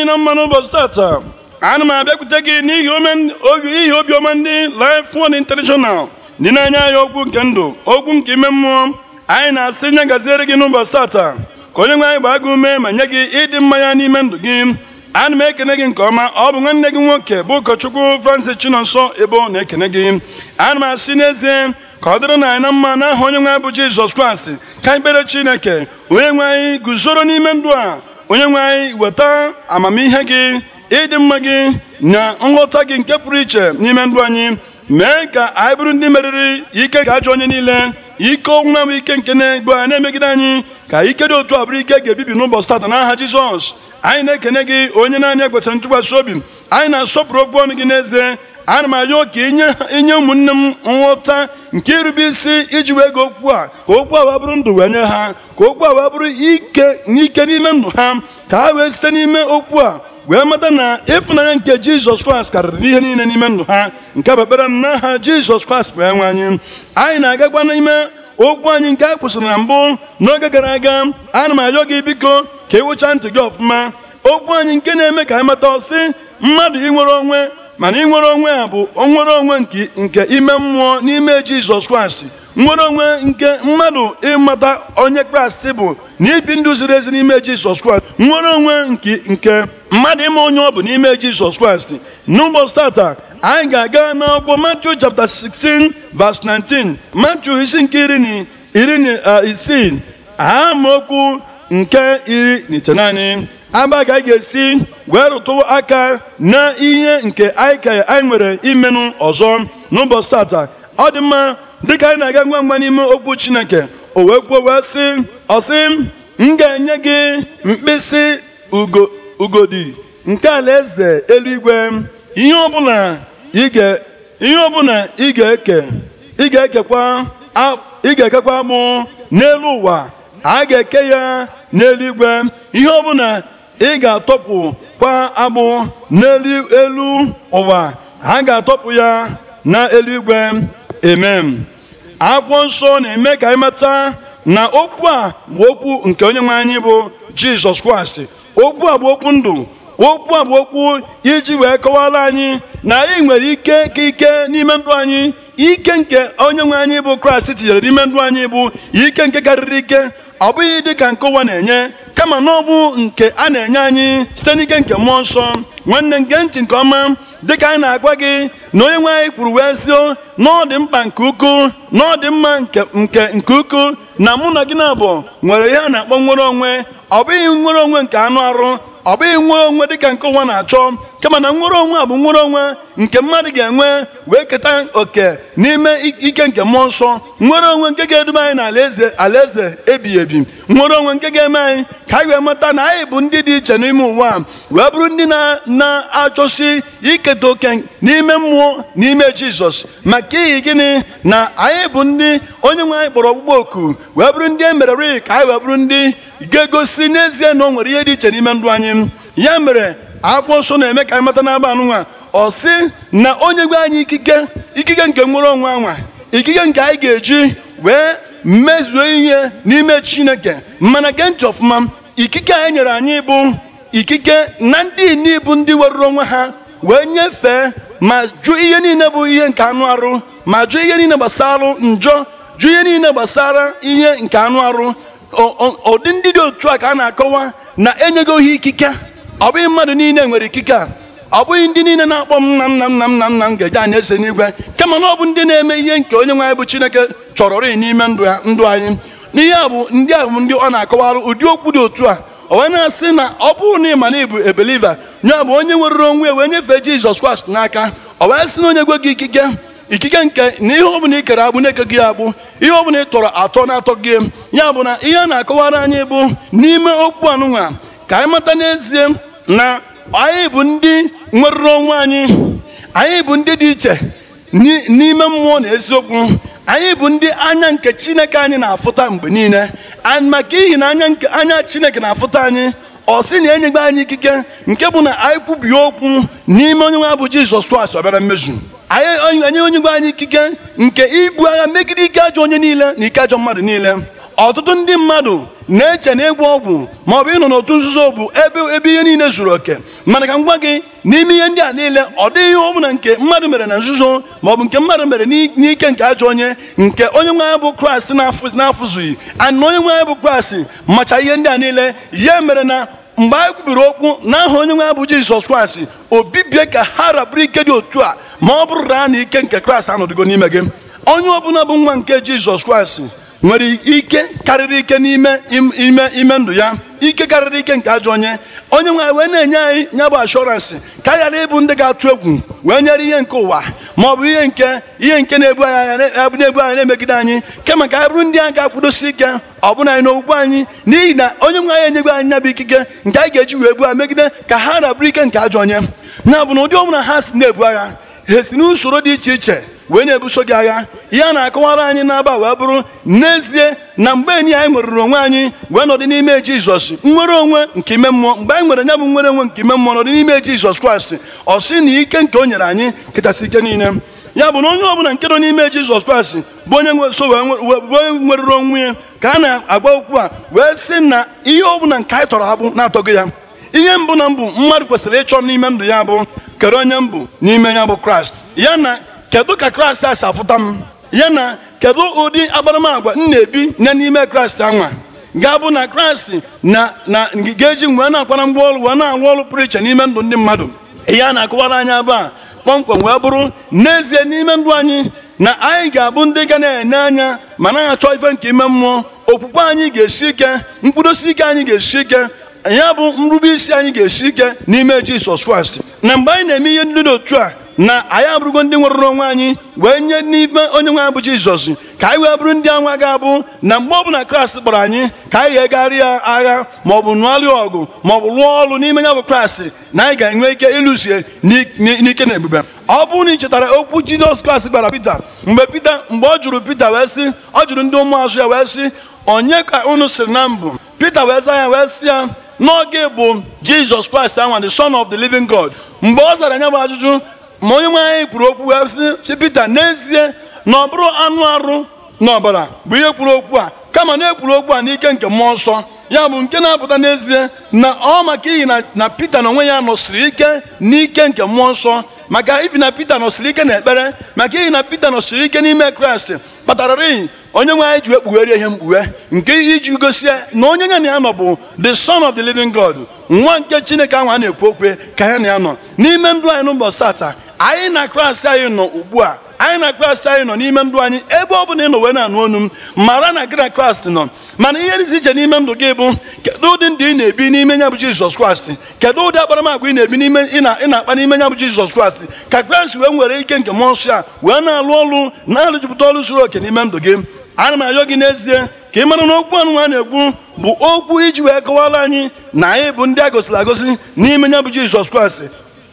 anyị na mma n'ụbọchị tata ana m abịakwute gị n'ihi obiọma ndị Life Word International dị n'anya anya okwu nke ndụ okwu nke ime mmụọ anyị na-asị nye gaziere gị n'ụbọchị taata ka onye nwe anyị gbaa gị ume ma nye gị ịdị mmanya n'ime ndụ gị ana m ekene gị nke ọma ọ bụ nwanne gị nwoke bụ ụkọchukwu Francis Chinonso Ebo na-ekene gị ana m asị n'ezie ka ọ dịrị na anyị na mma n'aha onye nwe anyị bụ Jizọs Kraịst ka ikpere Chineke onye nwe anyị guzoro n'ime ndụ a onye nwe anyị weta amamihe gị ịdị mma gị na nghọta gị nke pụrụ iche n'ime ndụ anyị mee ka anyị bụrụ ndị meriri ike ga ajọ onye niile ike ọnwụnwa m ike nke na-egbu anyị na-emegide anyị ka ike dị otu a bụrụ ike ga-ebibi n'ụbọchị tata n'aha Jizọs anyị na-ekene gị onye naanị ekwesịrị ntụkwasị obi anyị na-asọpụrụ okwu ọnụ gị n'ezie ana m arịọ ka inye ụmụnne m nghọta nke irube isi iji wee gị okwu a ka okwu a wee bụrụ ndụ wee nye ha ka okwu a wee bụrụ ike n'ike n'ime ndụ ha ka ha wee site n'ime okwu a wee mata na ịfụnanya nke jizọs kraịst karịrị n'ihe niile n'ime ndụ ha nke bụ ekpere n'aha jizọs kraịst bụ enwe anyị anyị na-agakwa n'ime okwu anyị nke a kwụsịrị na mbụ n'oge gara aga ana m arịọ gị biko ka ị wụcha ntị gị ọfụma okwu anyị nke na-eme ka anyị mata ọsị mmadụ inwere onwe mana ịnwere onwe a bụ nwere onwe nke ime mmụọ n'ime jizọs kraịst nwere onwe nke mmadụ ịmata onye kraịst bụ na ibi ndụ ziri ezi n'ime jizọs kraịst nwere onwe nke mmadụ ịma onye ọ bụ n'ime jizọs kraịst n'ụbọchị tata anyị ga-aga n'akwụkwọ Matthew chapter 16 verse 19 Matthew isi nke iri na iri na uh, isii nke iri na agba ka anyị ga-esi wee rụtụ aka na ihe nke anyị ka anyị nwere imenụ ọzọ n'ụbọchị tata ọ dị mma dịka anyị na-aga ngwa ngwa n'ime okwu chineke o wee kwuo wee sị ọsị m ga-enye gị mkpịsị ugodi nke alaeze eluigwe ihe ọbụla ị ga ga-ekekwa mụ n'elu ụwa a ga-eke ya n'eluigwe ihe ọbụla ị ga-atọpụ kwa agbụ n'elu ụwa ha ga-atọpụ ya na eluigwe emem akwụkwọ nsọ na-eme ka anyị mata na okwu a bụ okwu nke onye nwe anyị bụ jizọs kraịst okwu a bụ okwu ndụ okwu a bụ okwu iji wee kọwara anyị na anyị nwere ike ka ike n'ime ndụ anyị ike nke onye nwe anyị bụ kraịst tinyere n'ime ndụ anyị bụ ike nke karịrị ike ọ bụghị dịka nke ụwa na-enye kama na ọ bụ nke a na-enye anyị site n'ike nke mmụọ nsọ nwanne nke ntị nke ọma dịka anyị na-agwa gị na onye nwe anyị kwuru wee sị na ọ dị mkpa nke ukwu na ọ dị mma nke nke ukwu na mụ na gị na abụ nwere ihe a na-akpọ nwere onwe ọ bụghị nwere onwe nke anụ arụ ọ bụghị nwere onwe dịka nke ụwa na-achọ kama na nwere onwe a bụ nwere onwe nke mmadụ ga-enwe wee keta oke n'ime ike nke mmụọ nsọ nwere onwe nke ga-eduba anyị n'alaeze alaeze ebighị ebi nwere onwe nke ga-eme anyị ka anyị wee mata na anyị bụ ndị dị iche n'ime ụwa wee bụrụ ndị na-achọsi iketa oke n'ime mmụọ n'ime jizọs maka ihi gịnị na anyị bụ ndị onye nwe anyị kpọrọ ọgbụgbọ oku wee bụrụ ndị e merere ka anyị wee bụrụ ndị ga-egosi n'ezie na o nwere ihe dị iche n'ime ndụ anyị ya mere akwụkwọ nsọ na-eme ka anyị mata n'aba nwa ọ sị na onye gwe anyị ikike ikike nke nwere onwe anwa ikike nke anyị ga-eji wee mezuo ihe n'ime chineke mana gee ọfụma ikike a nyere anyị bụ ikike na ndị ibu ndị weruru onwe ha wee nyefee ma jụ ihe niile bụ ihe nke anụ arụ ma jụ ihe niile gbasara njọ jụ ihe niile gbasara ihe nke anụ arụ ụdị ndị dị otu a ka a na-akọwa na enyego ohi ikike ọ bụghị mmadụ niile nwere ikike a ọ bụghị ndị niile na-akpọ m na m nna m nna m nna m nna m ga-eje anyị ese n'igwe kama na ọ bụ ndị na-eme ihe nke onye nwe anyị bụ Chineke chọrọ rịị n'ime ndụ anyị n'ihe a bụ ndị a bụ ndị ọ na-akọwarụ ụdị okwu dị otu a ọ wee na-asị na ọ bụrụ na ị ma na ị bụ ebeliva nya bụ onye nwere onwe ya wee nyefe Jizọs Kraịst n'aka o wee sị na onye gwe gị ikike ikike nke na ihe ọbụla ị kere agbụ na-eke gị agbụ ihe ọbụla ị tọrọ atọ na-atọ gị ya bụ na ihe a na-akọwara anyị bụ n'ime okwu anụnwa ka anyị mata n'ezie na anyị bụ ndị nwerụrụ onwe anyị anyị bụ ndị dị iche n'ime mmụọ na eziokwu anyị bụ ndị anya nke chineke anyị na-afụta mgbe niile maka ihi na anya nke anya chineke na-afụta anyị ọ sị na enyegbe anyị ikike nke bụ na anyị kwubie okwu n'ime onye nwe abụ jizọs kraịst ọbịara bịara mmezu anyị onye onye nwe anyị ikike nke ibu agha megide ike ajọ onye niile na ike ajọ mmadụ niile ọtụtụ ndị mmadụ na-eche na egwu ọgwụ ma ọ bụ ịnọ n'otu nzuzo bụ ebe ebe ihe niile zuru oke mana ka m gwa gị n'ime ihe ndị a niile ọ dịghị ihe ọbụla nke mmadụ mere na nzuzo ma ọ bụ nke mmadụ mere n'ike nke ajọ onye nke onye nwe anyị bụ kraịst na-afụzughị ana onye nwe anyị bụ kraịst macha ihe ndị a niile ya mere na mgbe anyị kwubiri okwu n'aha onye nwe anyị bụ jizọs kraịst obibie ka ha raburu ike dị otu a ma ọ bụrụ na na ike nke kraịst anọdụgo n'ime gị onye ọbụla bụ nwa nke jizọs kraịst nwere ike karịrị ike n'ime ime ime ndụ ya ike karịrị ike nke ajọ onye onye nwe anyị wee na-enye anyị nya bụ ashọransị ka anyị ghara ịbụ ndị ga-atụ egwu wee nyere ihe nke ụwa ma ọ bụ ihe nke ihe nke na-ebu anya na-ebu anyị na-emegide anyị kama ka anyị bụrụ ndị a ga-akwụdosi ike ọ bụna anyị n'okpukpe anyị n'ihi na onye nwe anyị enyegbe anyị nyabụ ikike nke anyị ga-eji wee a megide ka ha na-abụrụ ike nke ajọ onye na bụ na ụdị ọbụla ha si na-ebu agha ha si n'usoro dị iche iche wee na-ebuso gị agha ya na-akọwara anyị n'aba wee bụrụ n'ezie na mgbe enyi anyị nwerụrụ onwe anyị wee nọdị n'ime jizọs nwere onwe nke ime mmụọ mgbe anyị nwere nya bụ nwere onwe nke ime mmụọ nọdị n'ime jizọs kraịst ọ sị na ike nke o nyere anyị kachasị ike niile ya bụ na onye ọbụla nke nọ n'ime jizọs kraịst bụ onye nweso wee nwerụrụ onwe ya ka a na-agba okwu a wee sị na ihe ọbụla nke anyị tọrọ bụ na-atọghị ya ihe mbụ na mbụ mmadụ kwesịrị ịchọ n'ime ndụ ya bụ kere onye mbụ n'ime ya bụ kraịst ya na kedu ka kraịst a si afụta m ya na kedu ụdị agbaramagwa m na-ebi na n'ime kraịst anwa ga-abụ na kraịst na na ga-eji wee na-akwara mgbe ọrụ wee na-arụ ọrụ pụrụ iche n'ime ndụ ndị mmadụ ya na akụwara anyị abụ a kpọmkwem wee bụrụ n'ezie n'ime ndụ anyị na anyị ga-abụ ndị ga na-enye anya ma na achọ ife nke ime mmụọ okwukwe anyị ga-esi ike mkpụrụosi ike anyị ga-esi ike ya bụ nrube isi anyị ga-esi ike n'ime Jisọs Kraịst na mgbe anyị na-eme ihe ndị dị otu a na anyị abụrụgo ndị nwụrụ n'onwe anyị wee nye n'ife onye nwe anyị bụ jizọs ka anyị wee bụrụ ndị anwa ga-abụ na mgbe bụla kraịst kpọrọ anyị ka anyị ga-egarị ya agha maọbụ nụarịa ọgụ maọbụ lụọ ọrụ n'ime ya bụ kraịst na anyị ga-enwe ike ịlụsie n'ike na ebube ọ bụrụ na ị chetara okwu jizọs kraịst gbara pita mgbe pita mgbe ọ jụrụ pita wee sị ọ jụrụ ndị ụmụazụ ya wee sị onye ka unu siri na mbụ pita wee zaa ya wee sị ya n'oge bụ jizọs kraịst anwa the son of the living god mgbe ọ zara anya bụ ajụjụ ma onye nwe anyị kwuru okwu si Pita n'ezie na ọ bụrụ anụ arụ na ọbara bụ ihe kwuru okwu a kama na ekwuru okwu a n'ike nke mmụọ nsọ ya bụ nke na-apụta n'ezie na ọ maka iyi na Pita na onwe ya nọsiri ike n'ike nke mmụọ nsọ maka ibi na pete nọsiri ike na ekpere maka iyi na Pita nọsiri ike n'ime Kraịst kpatara iyi onye nwe anyị ji ekpughere ihe mkpughe nke iji gosi na onye ya na ya nọ bụ the son of the living God nwa nke Chineke ahụ a na-ekwu okwe ka ya na ya nọ n'ime ndụ anyị n'ụbọchị tata anyị na klaasị anyị nọ ugbu a anyị na klaasị anyị nọ n'ime ndụ anyị ebe ọ bụla ị nọ wee na-anụ ọnụ m mara na gị na klaasị nọ mana ihe dịzi iche n'ime ndụ gị bụ kedụ ụdị ndụ ị na-ebi n'ime nya bụ jizọs kraịst kedụ ụdị akparamagwa ị na-ebi n'ime ị na-akpa n'ime ya bụ jizọs kraịst ka kraịst wee nwere ike nke mmụọ nsọ a wee na-alụ ọlụ na arụjupụta ọlụ zuru oke n'ime ndụ gị ana m ayọ gị n'ezie ka ị mara na okwu anụ a na-ekwu bụ okwu iji wee kọwara anyị na anyị bụ ndị a gosiri agosi n'ime ya bụ jizọs kraịst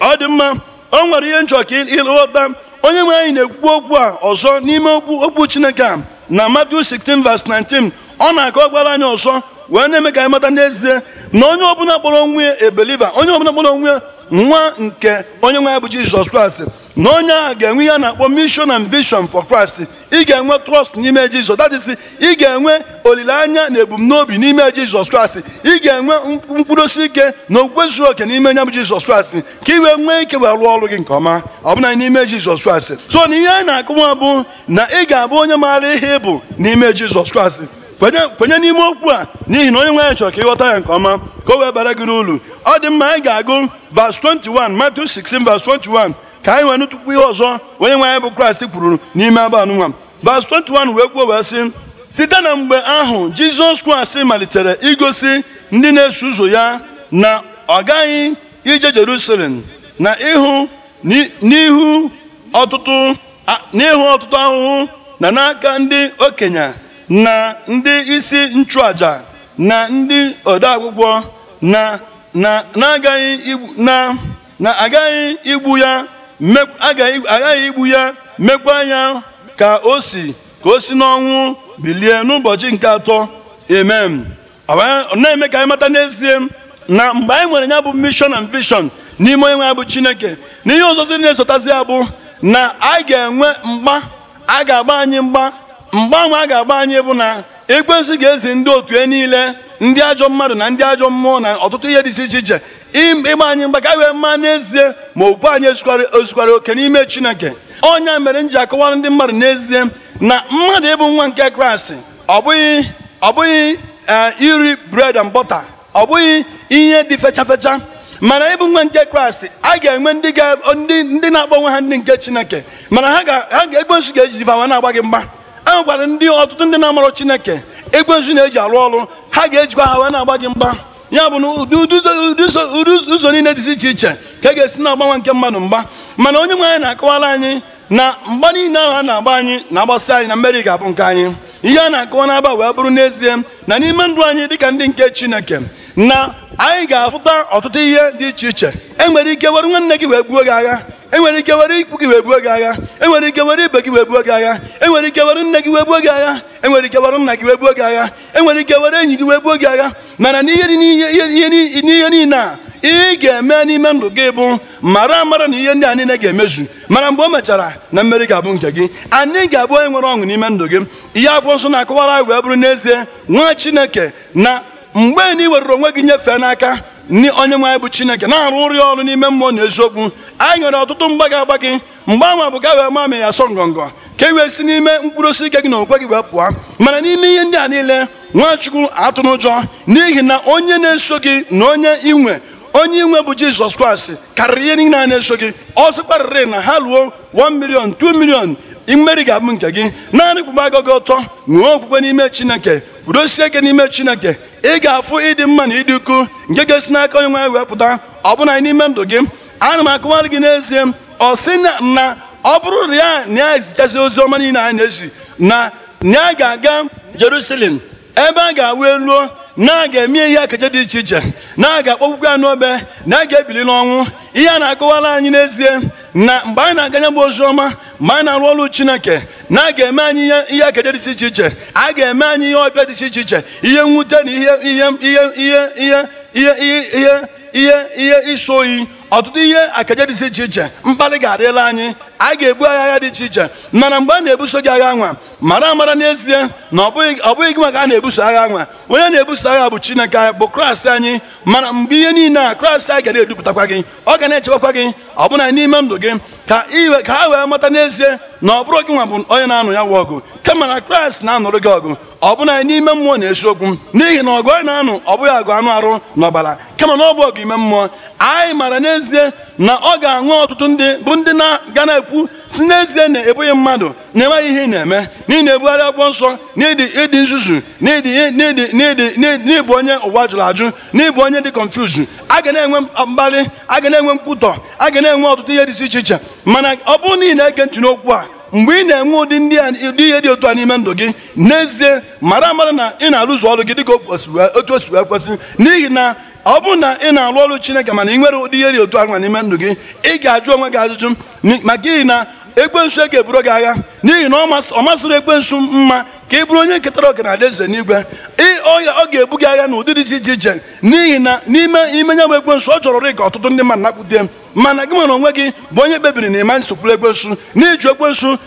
ọ dị mma o nwere ihe njọ ka ịghọta onye nwe anyị na-ekwu okwu a ọzọ n'ime okwu chineke a na Matthew 16 19 ọ na-akọ gwara anyị ọzọ wee na-eme ka anyị mata n'ezie na onye ọbụla kpọrọ onwe ebeliva onye ọbụla kpọrọ onwe nwa nke onye nwe anyị bụ Jizọs Kraịst na onye ahụ ga-enwe ihe a na-akpọ mission and vision for Christ ị ga-enwe trust n'ime Jizọs that is ị ga-enwe olileanya na ebumnobi n'ime Jizọs Kraịst ị ga-enwe mkpụrụosi ike na okwukwe zuru oke n'ime nya bụ Jizọs Kraịst ka ị wee nwee ike wee rụọ ọrụ gị nke ọma ọbụna n'ime Jizọs Kraịst so na ihe a na-akụwa bụ na ị ga-abụ onye maara ihe ịbụ bụ n'ime Jizọs Kraịst kwenye n'ime okwu a n'ihi na onye nwe anyị chọrọ ka ịghọta ya nke ọma ka o wee bara gị n'ulu ọ dị mma anyị ga-agụ verse 21 Matthew 16 21 ka anyị nwere tukwu ihe ọzọ onye nwe anyị bụ kraịst kwuru n'ime abụ anụnwa vas 21 wee kwuo wee sị site na mgbe ahụ jizọs kraịst malitere igosi ndị na-eso ụzọ ya na ọ gaghị ije jerusalem na ihu n'ihu ọtụtụ ahụhụ na n'aka ndị okenye na ndị isi nchụaja na ndị odeakwụkwọ na na agaghị igbu ya agaghị igbu ya mekwa ya ka o si ka o si n'ọnwụ bilie n'ụbọchị nke atọ amen na-eme ka anyị mata n'ezie na mgbe anyị nwere ya bụ mission and vision n'ime onye nwe ya bụ chineke n'ihe ihe ọzọzi na-esotazi ya bụ na a ga-enwe mgba a ga-agba anyị mgba mgbanwe a ga-agba anyị bụ na ekwensu ga-ezi ndị otu e niile ndị ajọ mmadụ na ndị ajọ mmụọ na ọtụtụ ihe dị iche iche ịgba anyị mgba ka wee mma n'ezie ma okwu anyị ezukwara oke n'ime chineke ọnya mere m ji akọwara ndị mmadụ n'ezie na mmadụ ịbụ nwa nke kraịst ọ bụghị ọ bụghị eh, iri bred and bọta ọ bụghị ihe dị fechafecha mana ịbụ nwa nke kraịst a ga-enwe ndị na-akpọ onwe ha ndị nke chineke mana ha ga-ekwensu ga-ejizi fa na-agba gị mgba ahụ gwara ndị ọtụtụ ndị na-amarọ Chineke ekwensu na-eji arụ ọrụ ha ga-ejikwa ha wee na-agba gị mgba ya bụ na ụdị ụzọ niile dị iche iche ka a e ga-esi na-agbanwe nke mmadụ mgba mana onye nwe anyị na-akọwara anyị na mgba niile ahụ a na-agba anyị na-agbasị anyị na mmeri ga-abụ nke anyị ihe a na-akọwa n'aba wee bụrụ n'ezie na n'ime ndụ anyị dịka ndị nke Chineke na anyị ga-afụta ọtụtụ ihe dị iche iche e nwere ike were nwanne gị wee gbuo gị agha enwere ike were ikwu gị wee buo gị agha enwere ike were ibe gị wee buo gị agha enwere ike were nne gị wee buo gị agha enwere ike were nna gị wee buo gị agha enwere ike were enyi gị wee buo gị agha mana n'ihe n'ihe niile a ị ga-eme n'ime ndụ gị bụ mara amara na ihe ndị a niile ga-emezu mara mgbe o mechara na mmeri ga-abụ nke gị anyị ga-abụ onye nwere ọṅụ n'ime ndụ gị ihe akwụkwọ nsọ na-akọwara anyị wee bụrụ n'ezie nwa Chineke na mgbe na were onwe gị nyefee n'aka ndị onye anyị bụ chineke na-arụ ụrị ọrụ n'ime mmụọ na eziokwu anyị nwere ọtụtụ mgbaga agbagị mgbe anwa bụ ka wee ma amị ya asọ ngọngọ ka e wee si n'ime mkpụrụ osisi ike gị na okwe gị wee pụọ mana n'ime ihe ndị a niile nwachukwu atụ n'ụjọ n'ihi na onye na-eso gị na onye inwe onye inwe bụ jizọs kraịst karịrị ihe niile a na-eso gị ọzọ kparịrị na ha ruo 1 million 2 million imeri ga-abụ nke gị naanị kpụba gị ọtọ nwee okwukwe n'ime chineke kwudosie ike n'ime chineke ị ga-afụ ịdị mma na ịdị ukwu nke ga-esi n'aka onye nwe wepụta ọbụna n'ime ndụ gị ana m akụwarị gị n'ezie ọ sị na ọ bụrụ ya na ya ezichasị ozi ọma niile anyị na-esi na ya ga-aga Jerusalem ebe a ga-awụ eluo na a ga-eme ihe ekeje dị iche iche na a ga-akpọgwụgwọ ya n'obe na a ga-ebili n'ọnwụ ihe a na-akọwara anyị n'ezie na mgbe anyị na-aganye bụ ozi ọma mgbe anyị na-arụ ọrụ chineke na a ga-eme anyị ihe ekeje dị iche iche a ga-eme anyị ihe ọbịa dị iche iche ihe mwute na ihe ihe ihe ihe ihe ihe ihe iso oyi ọtụtụ ihe akaje dị iche iche mkpali ga-adịla anyị a ga-ebu agha agha dị iche iche mana mgbe a na-ebuso gị agha nwa mara amara n'ezie na ọ bụghị gị maka a na-ebuso agha nwa onye na-ebuso agha bụ chineke anyị bụ kraịst anyị mana mgbe ihe niile a kraịst anyị ga na-edupụtakwa gị ọ ga na-echebakwa gị ọbụna n'ime ndụ gị ka iwe ka ha wee mata n'ezie na ọ bụrụ gị nwa bụ onye na-anụ ya nwa ọgụ kama na kraịst na-anụrụ gị ọgụ ọbụna n'ime mmụọ na-eziokwu n'ihi na ọgụ anyị na-anụ ọ bụghị agụ anụ arụ n'ọbara kama na ọ bụ ọgụ ime mmụọ anyị mara n'ezie na ọ ga-aṅụ ọtụtụ ndị bụ ndị na-ga na-ekwu si n'ezie na ebughị mmadụ na-enweghị ihe ị na-eme n'ihi na ebugharị ọgbọ nsọ n'ịdị nzuzu n'ịbụ onye ụwa jụrụ ajụ n'ịbụ onye dị kọnfuzu a ga na-enwe mkpali a ga na-enwe mkpụtọ a ga na-enwe ọtụtụ ihe dị iche iche mana ọ bụrụ na ị na-ege ntị n'okwu a mgbe ị na-enwe ụdị ndị ihe dị otu a n'ime ndụ gị n'ezie mara amara na ị na-arụzu ọrụ gị ka otu o siri ekwesị n'ihi na ọ bụ na ị na alụ ọrụ Chineke mana ị nwere ụdị ihe dị otu a n'ime ndụ gị ị ga-ajụ onwe gị ajụjụ maka ihi na ekwensu e ga-eburu gị agha n'ihi na ọ masịrị ekwensu mma ka ị bụrụ onye nketara ọga na eze n'igwe ọya ọ ga-ebu gị agha na ụdị dị iche iche n'ihi na n'ime ime nya bụ ekwensu ọ jọrọ ka ọtụtụ ndị mmadụ nakpute mana gị nwere onwe gị bụ onye kpebiri na ịma nsokwuru ekwensu n'iju ekwensu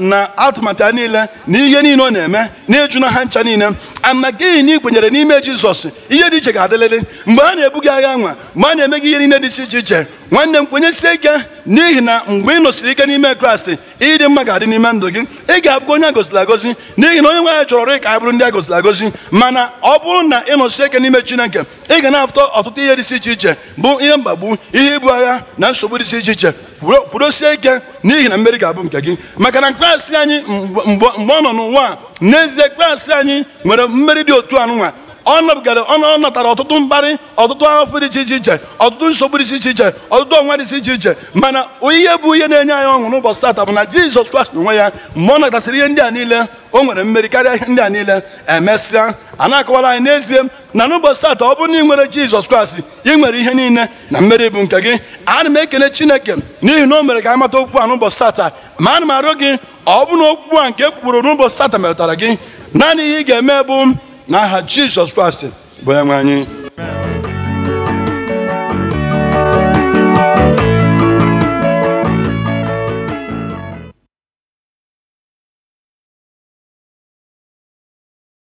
na atụmatụ ya niile na ihe niile ọ na-eme n'iju na ha ncha niile ama gịghị na ị n'ime jizọs ihe dị iche ga-adịlịrị mgbe a na-ebu gị agha nwa mgbe a na-eme gị ihe niile dị iche iche nwanne m kwenyesie ike n'ihi na mgbe ị nọsiri ike n'ime kraịst ịdị mma ga-adị n'ime ndụ gị ị ga-abụ onye agoziri agosi n'ihi na onye nwe anyị chọrọ ka anyị bụrụ ndị agoziri agosi mana ọ bụrụ na ị nọsịrị ike n'ime chineke ị ga na-afụta ọtụtụ ihe dịsị iche iche bụ ihe mgbagbu ihe ibu agha na nsogbu dịsị iche iche kwudosie ike n'ihi na mmeri ga-abụ nke gị maka na kraịst anyị mgbe ọ nọ n'ụwa n'ezie kraịst anyị nwere mmeri dị otu anụnwa ọ gara ọ natara ọtụtụ mkparị ọtụtụ afọ dị iche iche iche ọtụtụ nsogbu dị iche iche ọtụtụ ọnwa dị iche iche mana ihe bụ ihe na-enye anyị ọṅụ n'ụbọchị tata bụ na Jizọs Kraịst onwe ya mgbe ọ natasịrị ihe ndị a niile o nwere mmeri karịa ihe ndị a niile emesịa a na-akọwara anyị n'ezie na n'ụbọchị tata ọ bụrụ na ị nwere Jizọs Kraịst ị nwere ihe niile na mmeri bụ nke gị ana m ekele Chineke n'ihi na o mere ka anyị mata okwu a n'ụbọchị ma ana m arịọ gị ọ bụrụ na okwu a nke ekwuru n'ụbọchị tata metụtara gị naanị ihe ị ga-eme bụ n'aha jizọs kraịst bụ ya nwe anyị